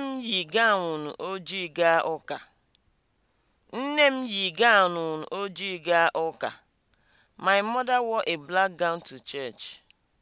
Nne m yi gawnụ ojii gaa ụka. Nne m yi gawnụ ojii gaa ụka. My mother wore a black gown to church.